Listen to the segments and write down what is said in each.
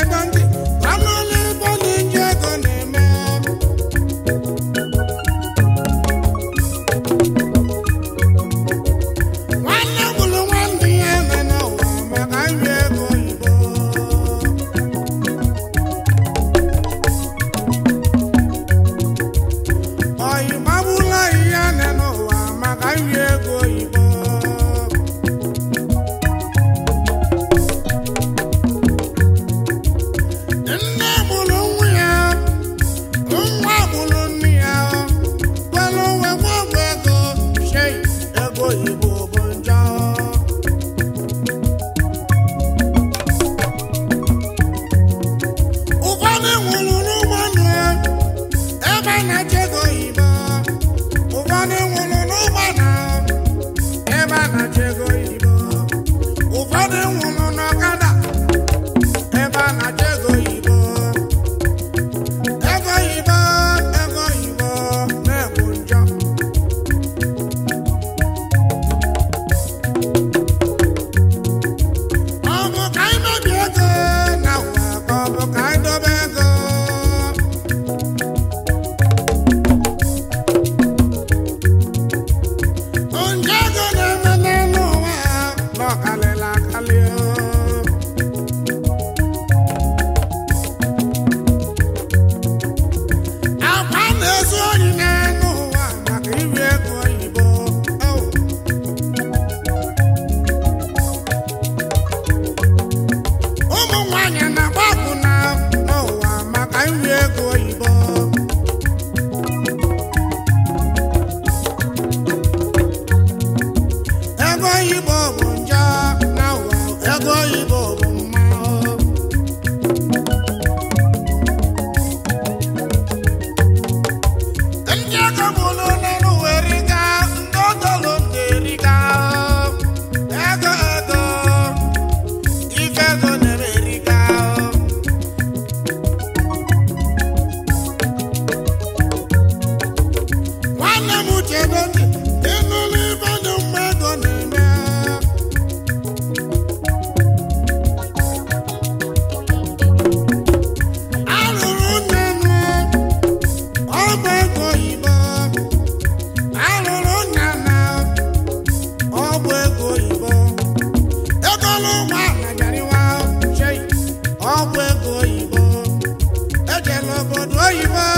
onye Acabou Ay, va.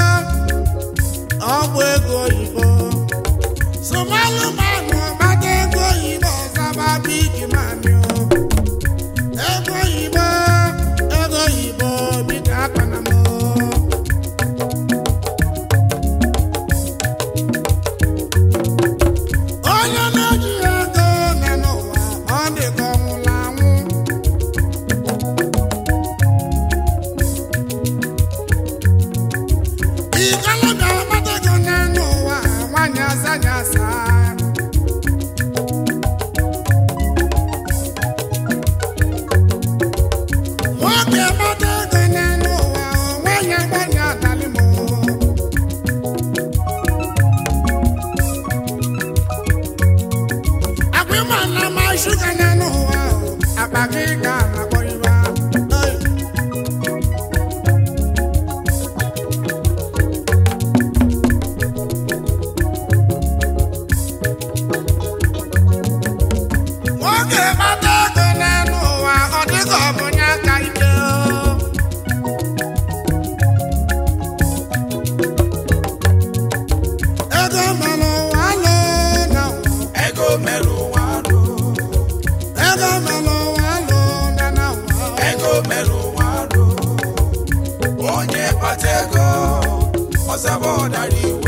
Ọ̀sẹ̀ bọ̀ darí ìwé.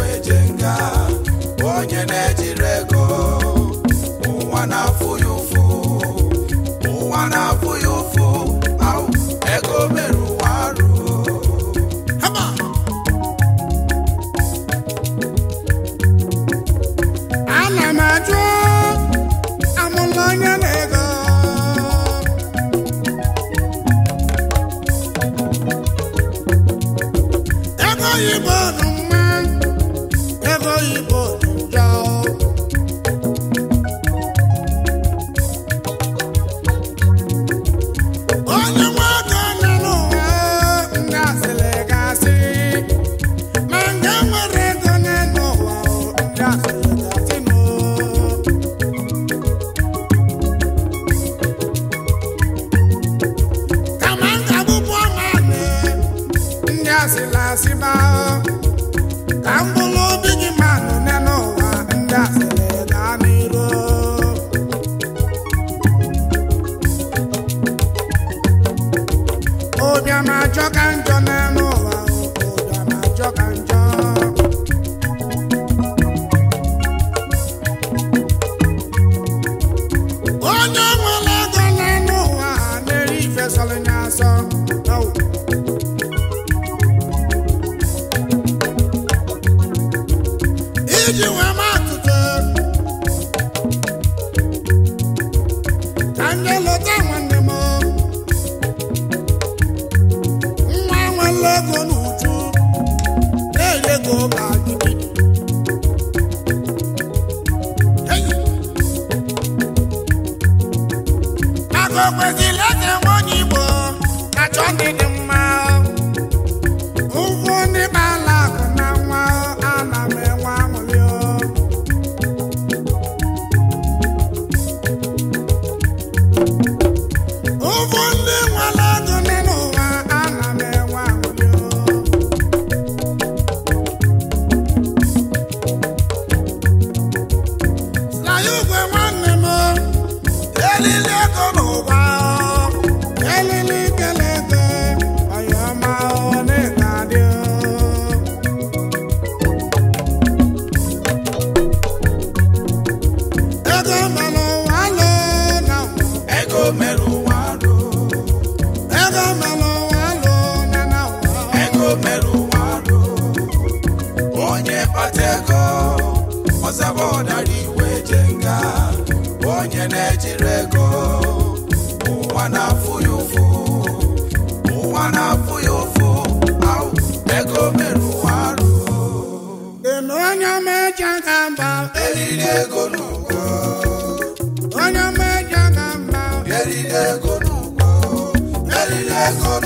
onye nwere ọzaba ọdara iwe je onye na-ejiri ego ụwa na-afụ ya ụfụ ụwa na-afụ ya ụfụ ego mere ụwa arụ onye meja ga mba eriri ego n'ụgwọ onye meja ga mba eriri ego n'ụgwọ eriri ego n'ụgwọ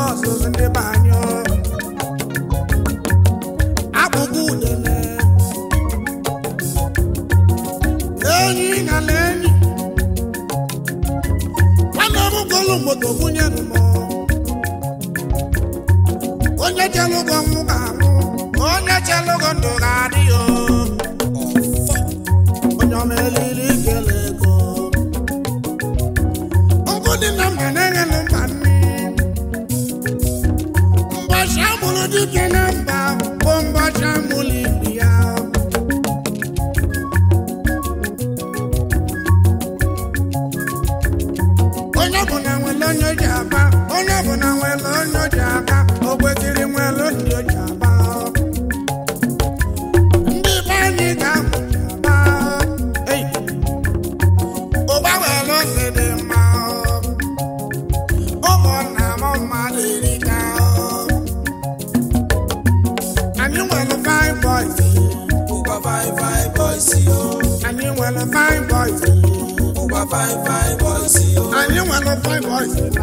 fine boys fine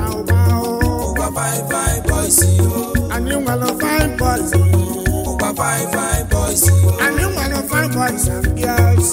fine boys anyị nwere fine boys ụba fine nwere fine boys and girls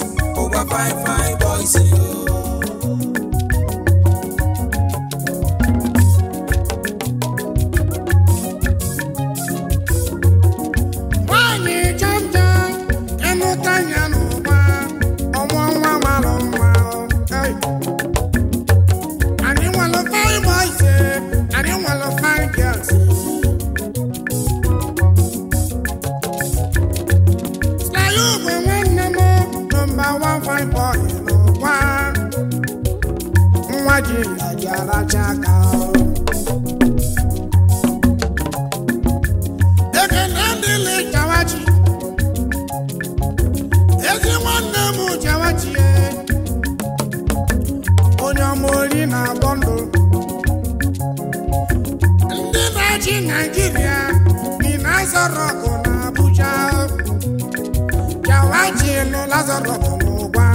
Lazarus n'ụwa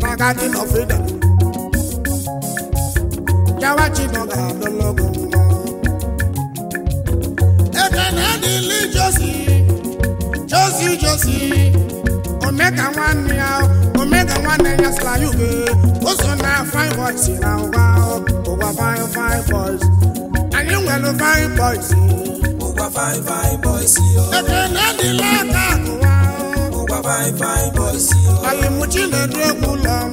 na Garden of Eden yawa Chinọga lologo ekene dịlị Josi Josi Josi omega nwanne ya omega nwanne ya sịla ya ube o so na fine boys na ụwa fine fine boys anyị nwere fine boys ụgbọ fine boys fine fine boys. Alimuchi na-edu egwu ụlọ m.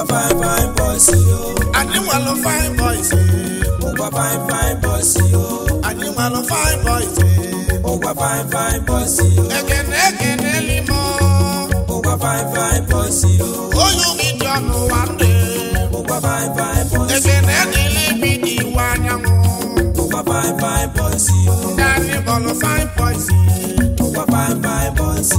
Ụkwa fine fine boys yo. Anyị nwalụ fine boys. Ụkwa eh. fine fine boys yo. Anyị nwalụ fine boys. Ụkwa fine fine boys fine fine boys wa ndị. Ụkwa fine fine boys. bi dị anyanwụ. Ụkwa fine fine boys yo. Ndị anyị fine boys. fine fine boys oh,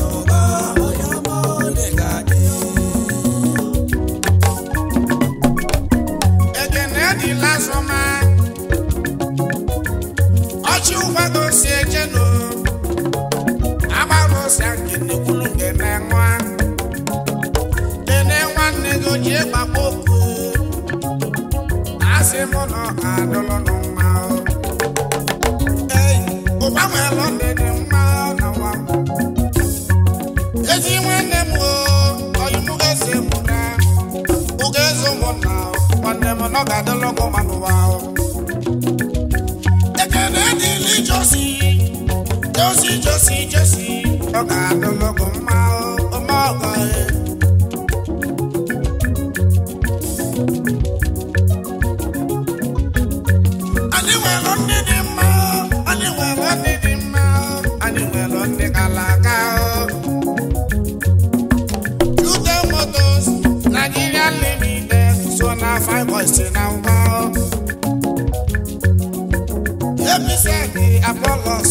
nwanne m na ọ ga-adịla ọkụ ma n'ụwa ahụ ekele josi josi josi josi ọ ga-adịla mma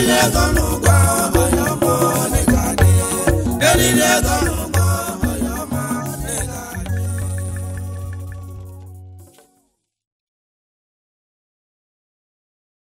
ego